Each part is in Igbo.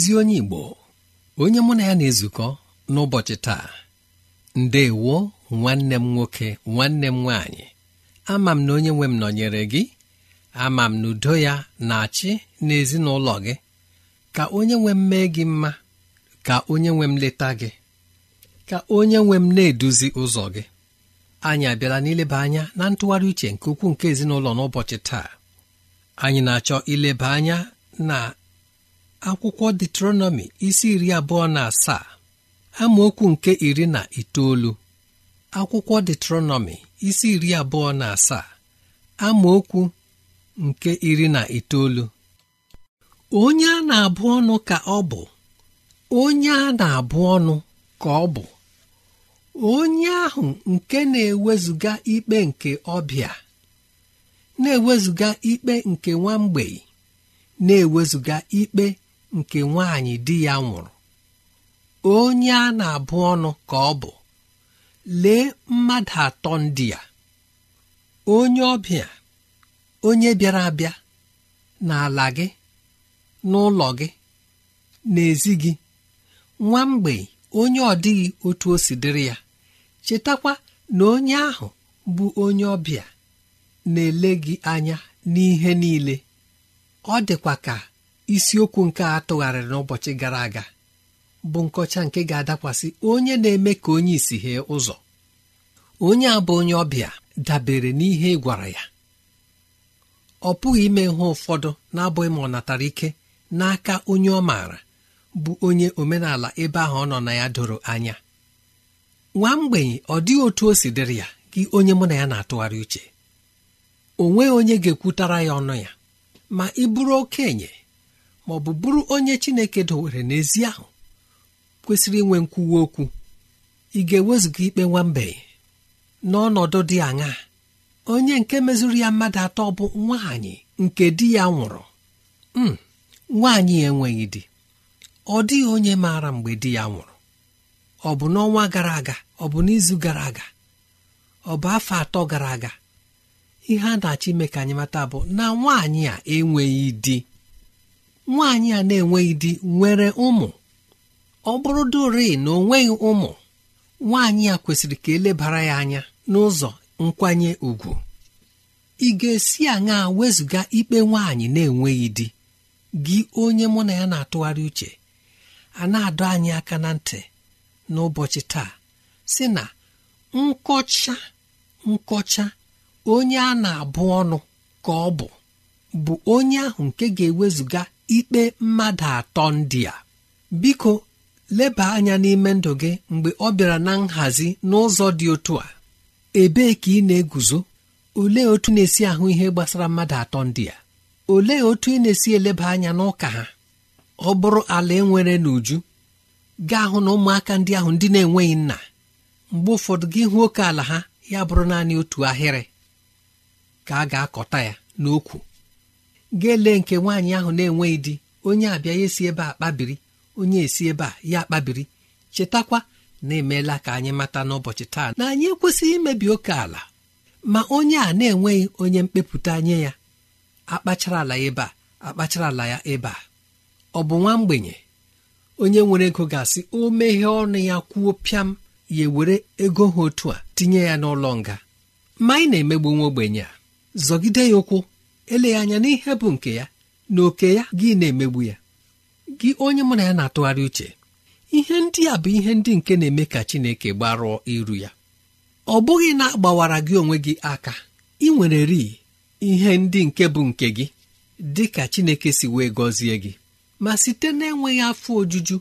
ezi onye igbo onye mụ na ya na-ezukọ n'ụbọchị taa ndewo nwanne m nwoke nwanne m nwaanyị ama m na onye nwe m nọnyere gị ama m na udo ya na-achị n'ezinụlọ gị ka onye nwe m mee gị mma ka onye nwe m leta gị ka onye nwe m na-eduzi ụzọ gị anyị abịala n'ileba anya na ntụgharị uche nke ukwuu nke ezinụlọ n'ụbọchị taa anyị na-achọ ileba anya na akwụkwọ detronọmi isi iri abụọ na asaa amaokwu nke iri na itoolu akwụkwọ isi iri abụọ na asaa amaokwu nke iri na itoolu onye a na-abụ ọnụ ka ọ bụ onye a na-abụ ọnụ ka ọ bụ onye ahụ nke na-ewezụga ikpe nke ọbịa na-ewezụga ikpe nke nwa na-ewezụga ikpe nke nwanyị di ya nwụrụ onye a na-abụ ọnụ ka ọ bụ lee mmadụ atọ ndị ya onye ọbịa onye bịara abịa n'ala gị n'ụlọ gị n'ezi gị nwa mgbei onye ọ dịghị otu o si dịrị ya chetakwa na onye ahụ bụ onye ọbịa na-ele gị anya n'ihe niile ọ dịkwa ka isiokwu nke a tụgharịrị n'ụbọchị gara aga bụ nkọcha nke ga-adakwasị onye na-eme ka onye isi hee ụzọ onye a bụ onye ọbịa dabere n'ihe ị gwara ya ọ pụghị ime ihe ụfọdụ na-abụghị ma ọ natara ike n'aka onye ọ maara bụ onye omenala ebe ahụ ọ nọ na ya doro anya nwa mgbenye ọ dịghị otu o si dịrị ya gị onye mụ na ya na-atụgharị uche o nweghị onye ga-ekwutara ya ọnụ ya ma ị bụrụ okenye ma ọ bụ bụrụ onye chineke dowere n'ezi ahụ kwesịrị inwe nkwuwa okwu ị ga-ewezuga ikpe nwambe n'ọnọdụ dị aṅaa onye nke mezuru ya mmadụ atọ bụ nwaanyị nke di ya nwụrụ m hmm, nwaanyị enweghị di ọ dịghị onye maara mgbe di ya nwụrụ ọ bụ n'ọnwa gara aga ọ bụ n'izu gara aga ọ bụ afọ atọ gara aga ihe a na-achọ ime ka anyị mata bụ na nwaanyị a enweghị di nwaanyị a na-enweghị di nwere ụmụ ọ bụrụ duri na ọ nweghị ụmụ nwaanyị a kwesịrị ka elebara ya anya n'ụzọ nkwanye ùgwù ị ga-esi aṅa wezụga ikpe nwaanyị na-enweghị di gị onye mụ na ya na-atụgharị uche a na-adọ anyị aka na ntị n'ụbọchị taa si na nkọcha nkọcha onye a na-abụ ọnụ ka ọ bụ bụ onye ahụ nke ga-ewezụga ikpe mmadụ atọ ndị a biko leba anya n'ime ndụ gị mgbe ọ bịara na nhazi n'ụzọ dị otu a ebee ka ị na-eguzo olee otu na-esi ahụ ihe gbasara mmadụ atọ ndị a olee otu ị na-esi eleba anya n'ụka ha ọ bụrụ ala nwere n'uju gaa hụ na ụmụaka ndị ahụ ndị na-enweghị nna mgbe ụfọdụ gị hụ oke ala ha ya bụrụ naanị otu ahịrị ka a ga-akọta ya n'okwu ga lee nke nwaanyị ahụ na-enweghị di onye abịa ya esi ebe a kpabiri onye esi ebe a ya kpabiri chetakwa na emeela ka anyị mata n'ụbọchị taa na anyị ekwesịghị imebi oke ala ma onye a na-enweghị onye mkpepụta nye ya akpachara ala ebe a akpachara ala ya ebe a ọ bụ nwa mgbenye onye nwere ego ga-asị o meghe ọnụ ya kwuo pịam ya ewere ego ha otu a tinye ya n'ụlọ nga ma anyị na-emegbu nwa ogbenye a zọgide ya ụkwụ eleghị anya n'ihe bụ nke ya na oke ya gị na-emegbu ya gị onye mụ na ya na-atụgharị uche ihe ndị a bụ ihe ndị nke na-eme ka Chineke gbarụọ iru ya ọ bụghị na agbawara gị onwe gị aka ị nwere rii ihe ndị nke bụ nke gị dị ka Chineke si wee gọzie gị ma site na-enweghị afọ ojuju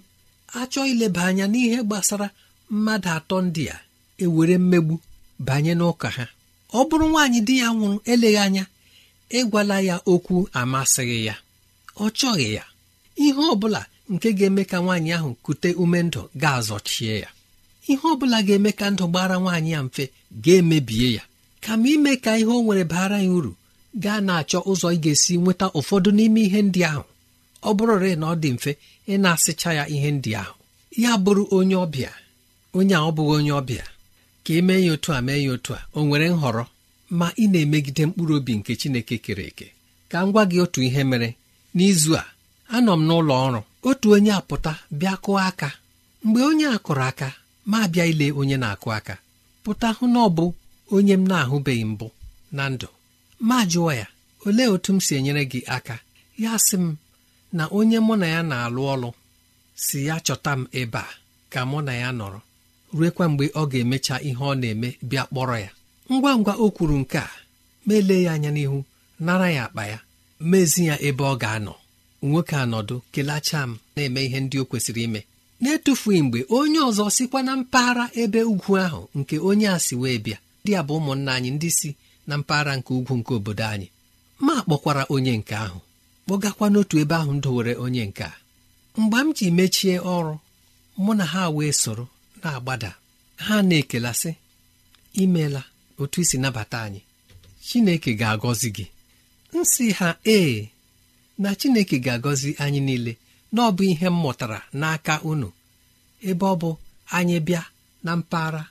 achọ ileba anya n'ihe gbasara mmadụ atọ ndị a ewere mmegbu banye n'ụka ha ọ bụrụ nwaanyị di ya nwụrụ eleghị anya ịgwala ya okwu amasịghị ya ọ chọghị ya ihe ọ bụla nke ga-eme ka nwaanyị ahụ kute ume ndụ ga-azọchie ya ihe ọ bụla ga-eme ka ndụ gbara nwaanyị ya mfe ga-emebie ya kama ime ka ihe o nwere bara ya uru gaa na-achọ ụzọ ị ga-esi nweta ụfọdụ n'ime ihe ndị ahụ ọ bụrụre na ọ dị mfe ị na-asịcha ya ihe ndị ahụ ya bụrụ onye ọbịa onye a ọ bụghị onye ọbịa ka emee ya otu a mee ya otu a o nwere nhọrọ ma ị na-emegide mkpụrụ obi nke Chineke kere eke ka m gwa gị otu ihe mere n'izu a anọ m n'ụlọ ọrụ otu onye apụta bịa kụọ aka mgbe onye a kụrụ aka ma bịa ile onye na-akụ aka pụta hụ na ọ bụ onye m na-ahụbeghị mbụ na ndụ ma jụọ ya olee otu m si enyere gị aka ya sị m na onye mụ na ya na-alụ ọlụ si ya chọta m ebe a ka mụ na ya nọrọ ruekwa mgbe ọ ga-emecha ihe ọ na-eme bịa kpọrọ ya ngwa ngwa o kwuru nke a meele elee ya anya n'ihu nara ya akpa ya mezi ya ebe ọ ga-anọ nwoke anọdụ kelacha m na-eme ihe ndị o kwesịrị ime na-etufughị mgbe onye ọzọ sikwa na mpaghara ebe ugwu ahụ nke onye a si wee bịa ndị a bụ ụmụnna anyị ndị si na mpaghara nke ugwu nke obodo anyị ma kpọkwara onye nke ahụ kpọgakwa n'otu ebe ahụ m dowere onye nke a mgbe m ji mechie ọrụ mụ na ha wee soro na-agbada ha na-ekelasị imeela otu isi nabata anyị chineke ga-agọzi gị nsị ha ee na chineke ga-agọzi anyị niile na ọ bụ ihe m mụtara n'aka unu ebe ọ bụ anyị bịa na mpaghara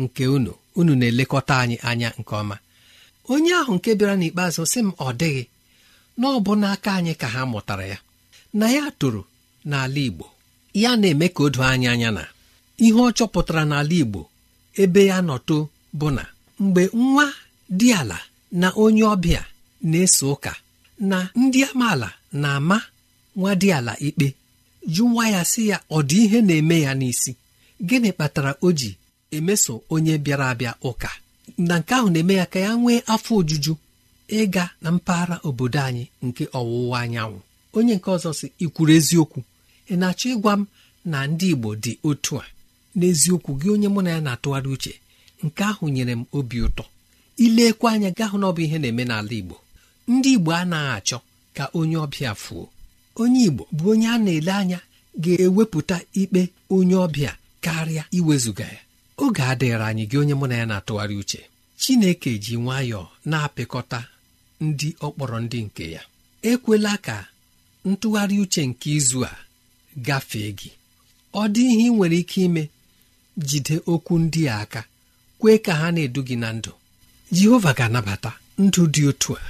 nke unu unu na-elekọta anyị anya nke ọma onye ahụ nke bịara n'ikpeazụ sị m ọ dịghị na ọ bụ n'aka anyị ka ha mụtara ya na ya toro n'ala Igbo ya na-eme ka o anyị anya na ihe ọ chọpụtara n'ala Igbo ebe ya nọ too. bụ na mgbe nwa dị ala na onye ọbịa na-eso ụka na ndị amaala na-ama nwa dị ala ikpe ju nwa ya sị ya ọ dị ihe na-eme ya n'isi gịnị kpatara o ji emeso onye bịara abịa ụka na nke ahụ na-eme ya ka ya nwee afọ ojuju ịga na mpaghara obodo anyị nke ọwụwa anyanwụ onye nke ọzọ si ikwuru eziokwu ị na-achọ ịgwa m na ndị Igbo dị otu a n'eziokwu gị onye mụ na ya na-atụgharị uche nke ahụ nyere m obi ụtọ ilekwa anya gahụ na ọ bụ ihe na-eme n'ala Igbo ndị Igbo anaghị achọ ka onye ọbịa fuo onye Igbo bụ onye a na-ele anya ga-ewepụta ikpe onye ọbịa karịa iwezuga ya oge adịghịra anyị gị onye mụ na ya na-atụgharị uche Chineke ji nwayọọ na-apịkọta ndị ọkpọrọ ndị nke ya ekwela ka ntụgharị uche nke izu a gafee gị ọ dị ihe ị nwere ike ime jide okwu ndị a aka kwee ka ha na-edu gị na ndụ jehova ga-anabata ndụ dị otu a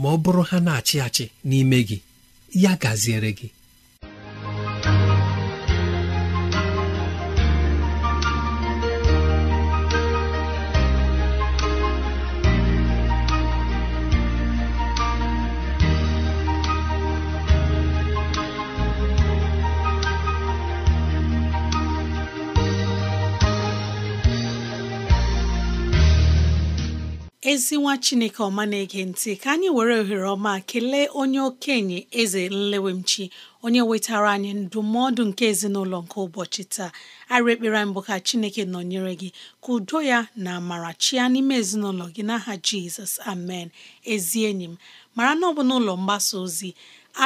ma ọ bụrụ ha na-achị achị n'ime gị ya gaziere gị ezinwa chineke ọma na-ege ntị ka anyị were ohere ọma kelee onye okenye eze nlewemchi onye wetara anyị ndụmọdụ nke ezinụlọ nke ụbọchị taa arị ekpere mbụ ka chineke nọnyere gị ka udo ya na amara chia n'ime ezinụlọ gị n'aha jizọs amen ezi enyi m mara na ọ n'ụlọ mgbasa ozi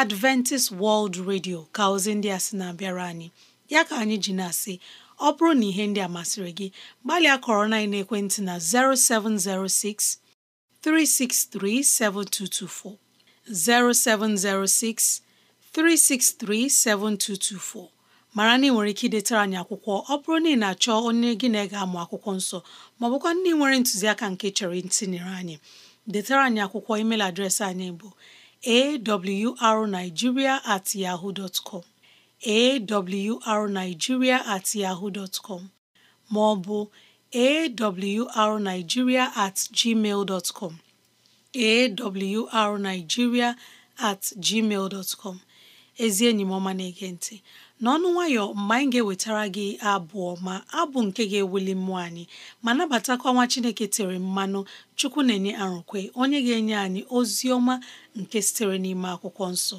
adventist world radio ka ozi ndị a sị na-abịara anyị ya ka anyị ji na-asị ọ bụrụ na ihe ndị a masịrị gị gbalịa kọrọ na ekwentị na 0706 363 7224 0706 363 7224 mara na ị nwere ike idetara anyị akwụkwọ ọ bụrụ na ị na-achọ onye gị na ga amụ akwụkwọ nsọ ma ọ ndị nwere ntụziaka nke chọrọ ntinyere anyị detara anyị akwụkwọ email adreesị anyị bụ awrnigeria at yahoo dot awrnigeria at yahoo dot com ma ọ bụ awrnigeria at gmail dot com at gmail dot ezi enyi m ọma na-ege ntị n'ọnụ nwayọ mgbe anyị ga-ewetara gị abụ ma abụ nke ga-ewuli mmụọ anyị ma nabatakwa nwa Chineke tere mmanụ Chukwu na-enye arụkwe onye ga-enye anyị ozi ọma nke sitere n'ime akwụkwọ nsọ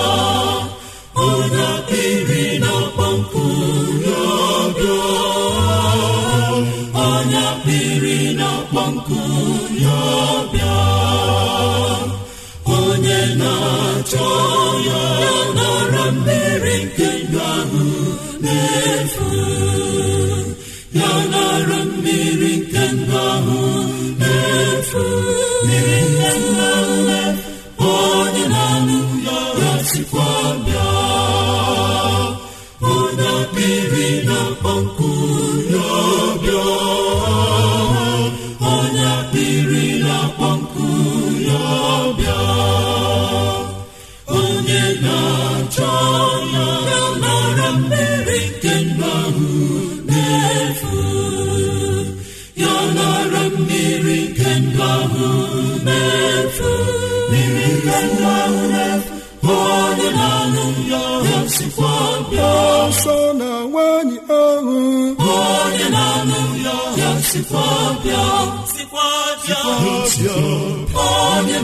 mmiri nke ndụ ahụ na-efu mmiri nke ndụ ahụ sikwa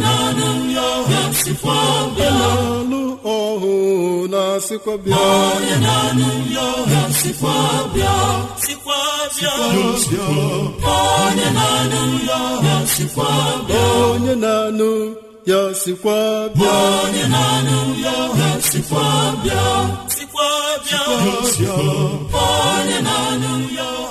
na-anụ ya ọhụ na onye sikwa bịa onye na-anụ ya sikwa bịa onye na-anụ ya sikwa bịa onye na-anụ ya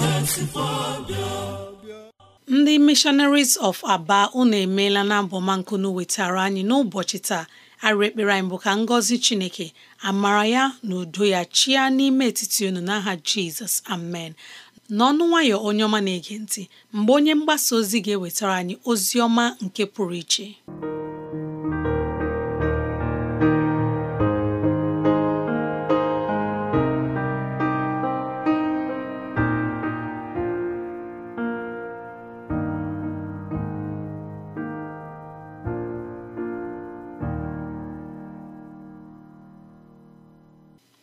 ndị missionaries of aba unu emeela na abọmankunu wetara anyị n'ụbọchị taa arịrị ekpere anyị bụ ka ngọzi chineke amara ya na udo ya chia n'ime etiti unu n'aha jizọs amen n'ọnụ nwayọ onye ọma na-ege ntị mgbe onye mgbasa ozi ga-ewetara anyị ozi ọma nke pụrụ iche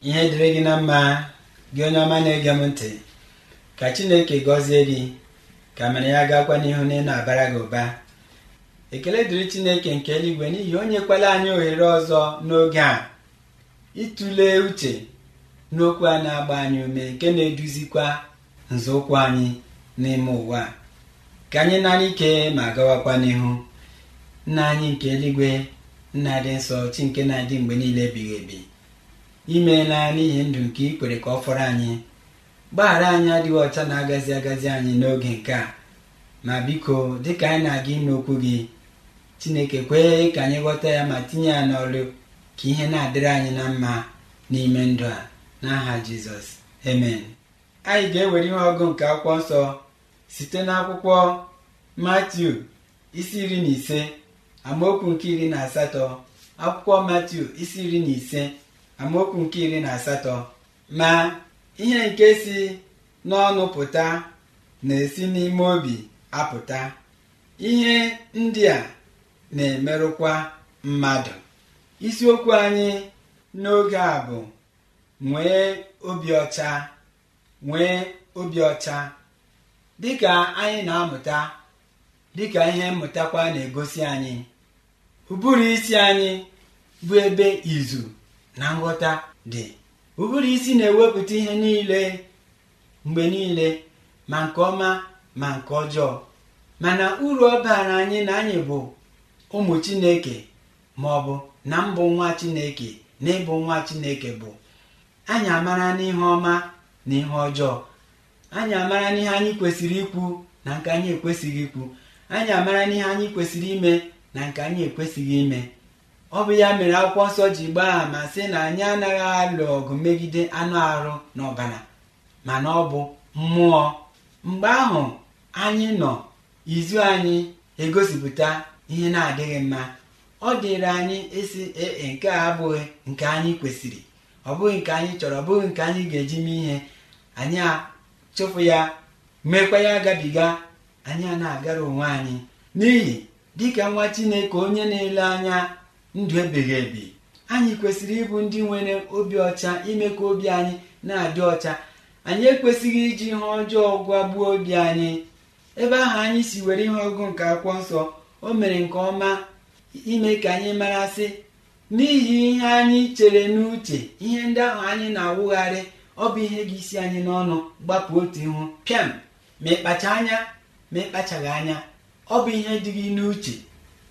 ihe dịrị gị na mma gị onye ọma na-ege m ntị ka chineke gọzie gị ka mere ya gakwa n'ihu na ị na-abara gị ụba ekele dịrị chineke nke eluigwe n'ihi onye kwela anyị ohere ọzọ n'oge a ịtụle uche n'okwu a na-agba anyị ume nke na-eduzikwa nzọụkwụ anyị n'ime ụwa ka anyị nara ike ma gawakwa n'ihu nna anyị nke eluigwe nna dị nsọ chi nke na-adị mgbe niile ebighị ebi imeela n'ihi ndụ nke ikwere ka ọ fọrọ anyị gbaghara anyị adịghị ọcha na-agazi agazi anyị n'oge nke a ma biko dịka anyị na-aga ịnụ okwu gị chineke kwee ka anyị ghọta ya ma tinye ya n'ọrụ ka ihe na-adịrị anyị na mma n'ime ndụ a n'aha jizọs amen anyị ga-ewere ihe ọgụ nke akwụkwọ nsọ site n'akwụkwọ matiu isi iri na ise amaokwu nke iri na asatọ akwụkwọ matiu isi iri na ise amaokwu nke iri na asatọ ma ihe nke si n'ọnụ pụta na-esi n'ime obi apụta ihe ndị a na-emerụkwa mmadụ isiokwu anyị n'oge a bụ nwee obi ọcha nwee obi ọcha dịka anyị na-amụta dịka ihe mmụtakwa na-egosi anyị ụbụrụ isi anyị bụ ebe izu na nghọta dị ụbụrụ isi na-ewepụta ihe niile mgbe niile ma nke ọma ma nke ọjọọ mana uru ọ baara anyị na anyị bụ ụmụ chineke ma ọ bụ na mbụ nwa chineke na ịbụ nwa chineke bụ anyị amara n'ihe ọma na ihe ọjọọ anyị amara n'ihe anyị kwesịrị ikwu na nke anyị ekwesịghị ikwu anyị amara n'ihe anyị kwesịrị ime na nke anyị ekwesịghị ime ọ bụ ya mere akwụkwọ nsọ ji gbaa ama sị na anyị anaghị alụ ọgụ megide anụ arụ na ọbara mana ọ bụ mmụọ mgbe ahụ anyị nọ izu anyị egosipụta ihe na-adịghị mma ọ dịrị anyị esi ee e, nke a abụghị nke anyị kwesịrị ọ bụghị nke anyị chọrọ ọ bụghị nke anyị ga-eji mee ihe anyị achụpụ ya mekwa ya agabiga anyị a na-agara onwe anyị n'ihi dịka nwa Chineke onye na-ele anya ndụ ebighị ebi anyị kwesịrị ịbụ ndị nwere obi ọcha ime ka obi anyị na-adị ọcha anyị ekwesịghị iji ihe ọjọọ gbuo obi anyị ebe ahụ anyị si were ihe ọgụ nke akwụkwọ nsọ o mere nke ọma ime ka anyị mara sị n'ihi ihe anyị chere n'uche ihe ndị ahụ anyị na-awụgharị ọ bụ ihe gị isi anyị n'ọnụ gbapụ otu ihu pịam ma ịkpacha anya ma ịkpachaghị anya ọ bụ ihe dị gị n'uche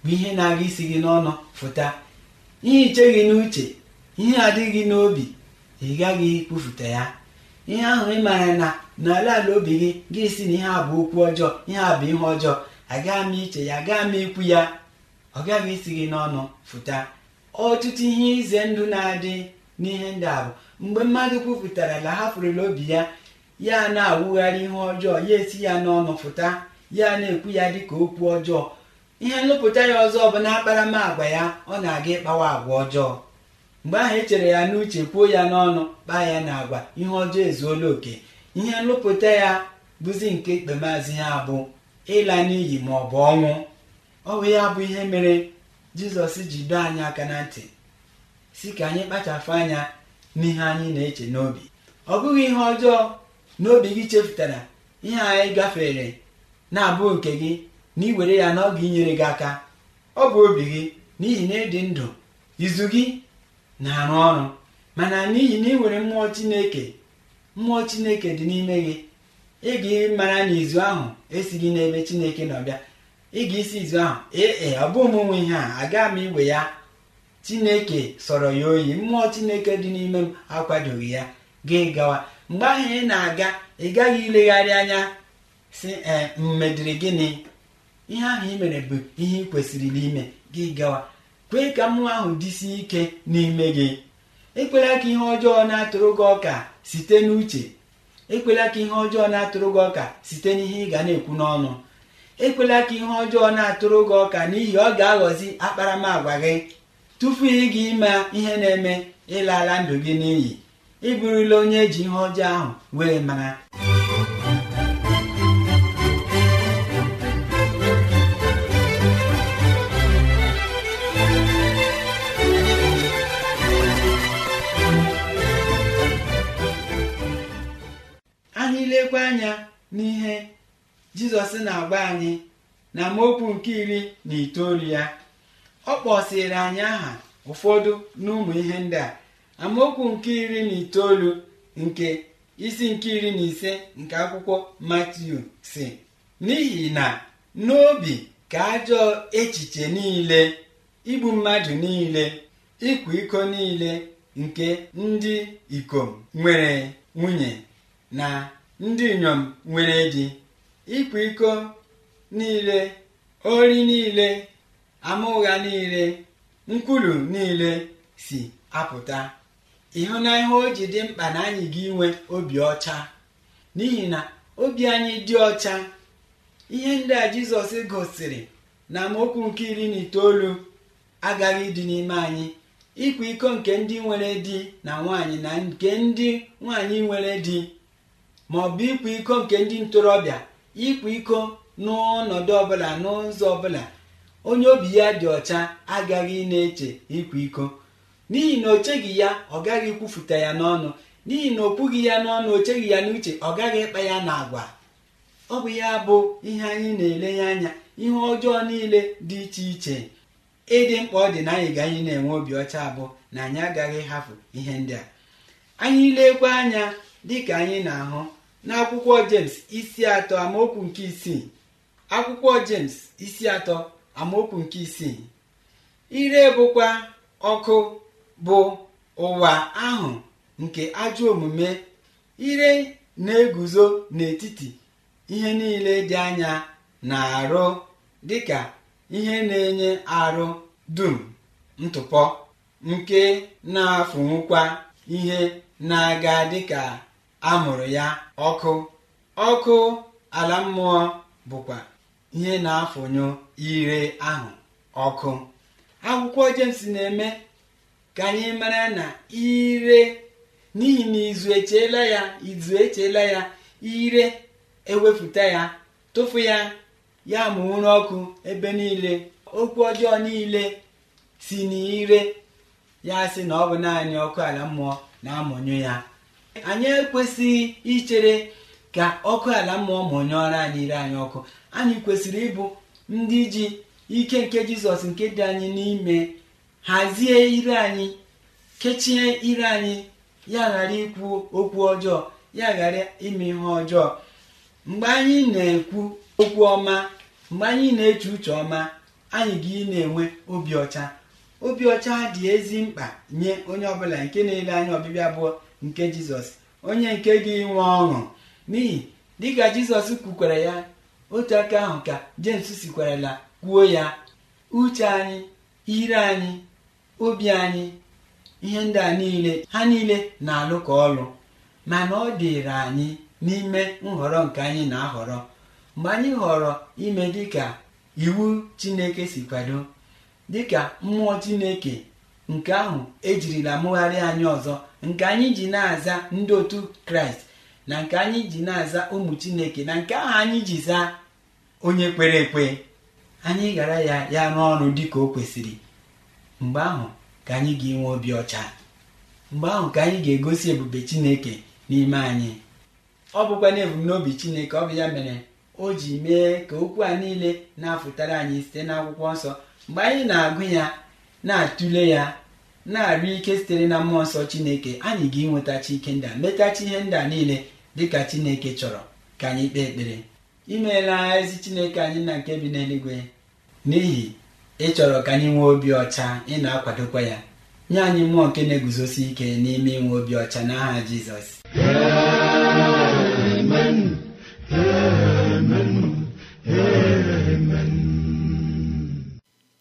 bụ ihe na-aga isi gị n'ọnụ fụta ihe iche gị n'uche ihe adịghị n'obi ị gaghị ikwufụta ya ihe ahụ ị maara na n'ala ala obi gị gị si na ihe a bụ okwu ọjọọ ihe a bụ ihe ọjọọ agaghị m iche ya gaa m ikwu ya ọ gaghị isi gị n'ọnụ fụta ọtụtụ ihe ize ndụ na-adị n'ihe ndị a bụ mgbe mmadụ kwupụtara na hapụrụla obi ya ya na-awụgharị ihe ọjọọ ya esi ya n'ọnụ fụta ya na-ekwu ya dị ka okwu ọjọọ ihe nlụpụta ya ọzọ bụ na ya ọ na-aga ịkpawa agwa ọjọọ mgbe ahụ echere ya n'uche kwuo ya n'ọnụ kpaa ya na agwa ihe ọjọọ ezuola oke ihe nlụpụta ya bụzi nke ikpemazụ ya bụ ịla n'iyi ma ọ bụ ọnwụ ọ bụ ya bụ ihe mere jizọs ji doo anyị aka na ntị si ka anyị kpachapụ anya n'ihe anyị na-eche n'obi ọ bụghị ihe ọjọọ n'obi gị chefutara ihe anyị gafere na-abụ nke gị na iwere ya na ọ ga-inyere gị aka ọ bụ obi gị n'ihi na ịdị ndụ izu gị na-arụ ọrụ mana n'ihi na ị nwere mmụọ chineke mmụọ chineke dị n'ime gị ị ga-mara na izu ahụ esighị n'ebe chineke nọbịa ị ga-esi izu ahụ ee e, ọ bụ ụmụnwe ihe a aga m iwe ya chineke sọrọ ya oyi mmụọ chineke dị n'ime m akwadoghị ya gị gawa mgbe ahụ ị na-aga ị gaghị ilegharị anya si mmedịrị gịnị ihe ahụ ị mere bụ ihe ị kwesịrị n'ime gị gawa kwee ka mmụọ ahụ dịsie ike n'ime gị ekwela ka ihe ọjọọ na-atụrụ gị ọka site n'uche ekwela ka ihe ọjọọ na-atụrụ gị ọka site n'ihe ị ga na-ekwu n'ọnụ ekwela ka ihe ọjọọ na-atụrụ gị ọka n'ihi ọ ga-aghọzi akparamagwa gị tupu ị ga ịma ihe na-eme ịlala ndụ gị n'iyi ị bụrụla onye eji ihe ọjọọ ahụ wee mara legwe anya n'ihe jizọs na-agba anyị na amaokwu nke iri na itoolu ya ọ kpọsịrị anyị aha ụfọdụ n'ụmụ ihe ndị a amaokwu nke iri na itoolu nke isi nke iri na ise nke akwụkwọ matiu si n'ihi na n'obi ka ajọ echiche niile igbu mmadụ niile ịkwa iko niile nke ndị ikom nwere nwunye na ndị inyom nwere di ịkwa iko niile ori niile ama ụgha niile nkwulu niile si apụta ihe o ji dị mkpa na anyị ga inwe obi ọcha n'ihi na obi anyị dị ọcha ihe ndị a jizọs gosiri na amaokwu nke iri na itoolu agaghị dị n'ime anyị ịkwa iko nke ndị nwere di na nwaanyị na nke ndị nwaanyị nwere di ma ọ bụ ịkwa iko nke ndị ntorobịa ịkwa iko n'ọnọdụ ọbụla n'ụzọ ọbụla onye obi ya dị ọcha agaghị na-eche ịkwa iko n'ihi na o cheghị ya ọ gaghị ikwufuta ya n'ọnụ n'ihi na opughị ya n'ọnụ o cheghị ya n'uche ọ gaghị ịkpa ya n'agwa ọ bụ ya bụ ihe anyị na-elenye anya ihe ọjọọ niile dị iche iche ịdị mkpa ọ dị na anyị ga anyị na-enwe obi ọcha abụọ na anyị agaghị hafụ ihe ndị a anyị lekwa anya dịka anyị na-ahụ n'akwụkwọ jems isi atọ amaokwu nke isii akwụkwọ jems isi atọ amaokwu nke isii ire bụkwa ọkụ bụ ụwa ahụ nke ajọ omume ire na-eguzo n'etiti ihe niile dị anya na arụ dịka ihe na-enye arụ dum ntụpọ nke na-afụnwukwa ihe na-aga dịka a mụrụ ya ọkụ ọkụ ala mmụọ bụkwa ihe na-afụnyụ ire ahụ ọkụ akwụkwọ James na-eme ka anyị mara na ire n'ihi na izu echela ya izu echela ya ire ewepụta ya tụfu ya ya mụrụ ọkụ ebe niile okwu ọjọọ niile si n'ire ya sị na ọ bụ naanị ọkụ ala mmụọ na-amụnyụ ya anyị ekwesịghị ichere ka ọkụ ala mmụọ mụnyụọrọ anyị ire anyị ọkụ anyị kwesịrị ịbụ ndị ji ike nke jizọs nke dị anyị n'ime hazie ire anyị kechie ire anyị ya ghara ikwu okwu ọjọọ ya ghara ime ihe ọjọọ mgbe anyị na-ekwu okwu ọma mgbe anyị na-eche uche ọma anyị ga na-enwe obi ọcha obi ọcha dị ezi mkpa nye onye ọbụla nke na-ele anya ọbịbịa abụọ nke jizọs onye nke gị nwe ọṅụ n'ihi dịka jizọs kwukwara ya otu aka ahụ ka jems sikwarala kwuo ya uche anyị ire anyị obi anyị ihe ndị a niile ha niile na-alụ ka ọlụ mana ọ dịịrị anyị n'ime nhọrọ nke anyị na-ahọrọ mgbe anyị họrọ ime dịka iwu chineke si kwado dịka mmụọ chineke nke ahụ ejirila mụgharị anyị ọzọ nke anyị ji na-aza ndị otu kraịst na nke anyị ji na-aza ụmụ chineke na nke ahụ anyị ji zaa onye kwere ekwe anyị ghara ya ya n'ọrụ dị ka o kwesịrị mgbe ahụ ka anyị ga-enwe obi ọcha mgbe ahụ ka anyị ga-egosi ebube chineke n'ime anyị ọ bụkwa na ebumnobi chineke ọ bụ ya mere o ji mee ka okwu a niile na-afụtara anyị site n'akwụkwọ nsọ mgbe anyị na-agụ ya na-atụle ya na arị ike sitere na mmụọ nsọ chineke anyị ga-enwetachi ike ndị a metachi ihe ndị a niile dịka chineke chọrọ ka anyị kpee ekpere imeela ezi chineke anyị na nke bi n'eluigwe n'ihi ịchọrọ ka anyị nwee obi ọcha ị na-akwadokwa ya nye anyị mmụọ nke na-eguzosi ike n'ime inwe obi ọcha n'aha jizọs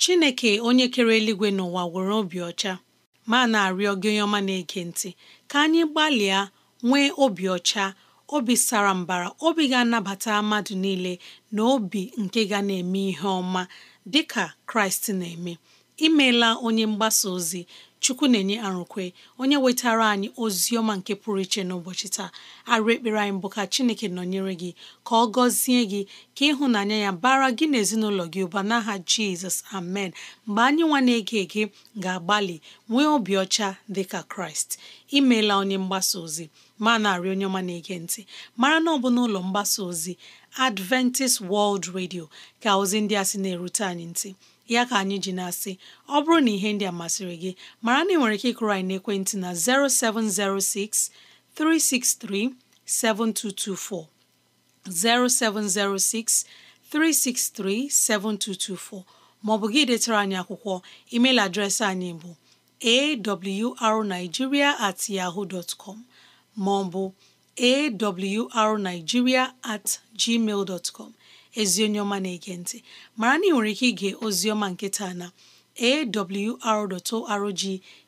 chineke onye kere eluigwe n'ụwa nwere obi ọcha ma na-arịọ gị ọma na-ege ntị ka anyị gbalịa nwee obi ọcha obi sara mbara obi ga-anabata mmadụ niile na obi nke ga na-eme ihe ọma dịka Kraịst na-eme imeela onye mgbasa ozi chukwu na-enye arụkwe onye wetara anyị ozi ọma nke pụrụ iche n'ụbọchị taa arụ ekpere anyị bụ ka chineke nọnyere gị ka ọ gọzie gị ka ịhụnanya ya bara gị na ezinụlọ gị ụba n'aha jizọs amen mgbe anyị nwa na-ege ege ga-agbalị nwee obi ọcha dị ka kraịst imeela onye mgbasa ozi ma na-arị onye ọma na-ege ntị mara na ọ bụ n'ụlọ mgbasa ozi Adventist World Radio ka ozi ndị a sị na-erute anyị ntị ya ka anyị ji na-asị ọ bụrụ na ihe ndị a masịrị gị mara na ị nwere ike ịkụrụ anyị n'ekwentị na 0706 363 7224 0706 363 7224 maọbụ gị detara anyị akwụkwọ email adreesị anyị bụ awrnigeria at ọ bụ com maọbụ at gmail ezi onye ọma na-ege ntị mara na ị nwere ike ige ozi ọma nke taa na rg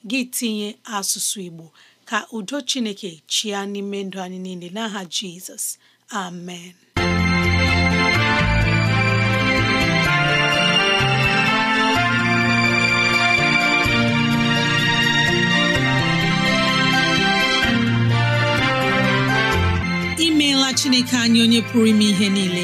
gị tinye asụsụ Igbo ka udo Chineke chịa n'ime ndụ anyị niile n'aha Jizọs amen imeela Chineke anyị onye pụrụ ime ihe niile